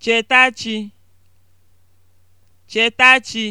Chetachi chetachi